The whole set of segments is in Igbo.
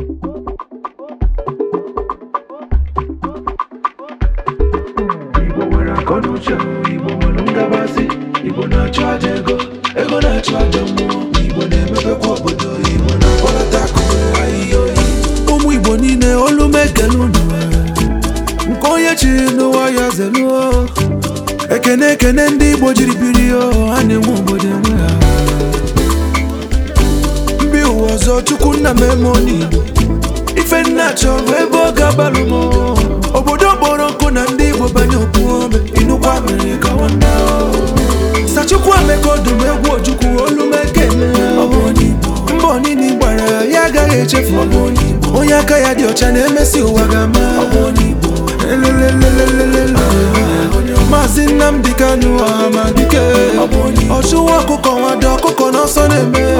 Igbo nwere Igbo nwere Igbo na aja ego ego na mmụọ Igbo na obodo Igbo na ụmụ Igbo niile olu mekele nke onye chiri ekene ekene ndị Igbo jiri biri ha na-enwe obodo enwe ha ụzọ chukwu nna m ife nna chọrọ ebe ọ ga-agbalụ m obodo kpọrọ nkụ na ndị igbo banye opuome inukwa mere ka nwanne sachukwu ameka ọdụm egwu ojukwu olumekene mbọ onini gbara ya agaghị echefu onye aka ya dị ọcha na-emesi ụwa ga-ama maazị Nnamdi Kanu Amadike ọchụwa ọkụkọ nwado ọkụkọ n'ọsọ na-eme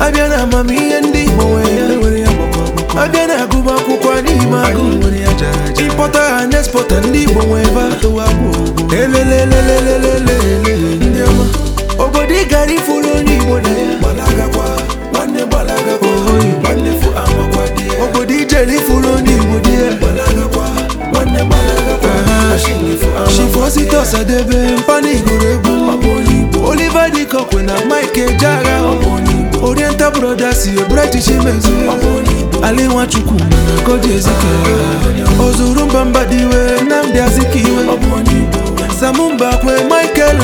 abịa na amamihe ndị nwere ya abịa na agụba akwụkwọ n'ime agụ ịkpọta ha na ndị Igbo nwebe elelelelelele obodo ị gara ifuru onye Igbo na ya obodo ijere ifuru onye Igbo dị ya shifo site ọsadebe mpanigoro egwu Dịkọkwe na Mike broda si eburu echichi mezu ala Nwachukwu koji ezike ozuru mbamba dị iwe Nnamdi Azikiwe samumba kwe Michael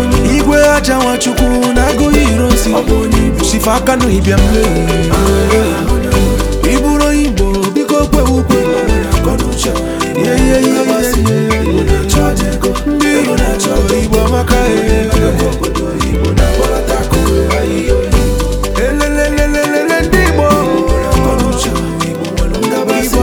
onye igwe aja Nwachukwu na agụghị irosi shifa aka n'ịbịa mle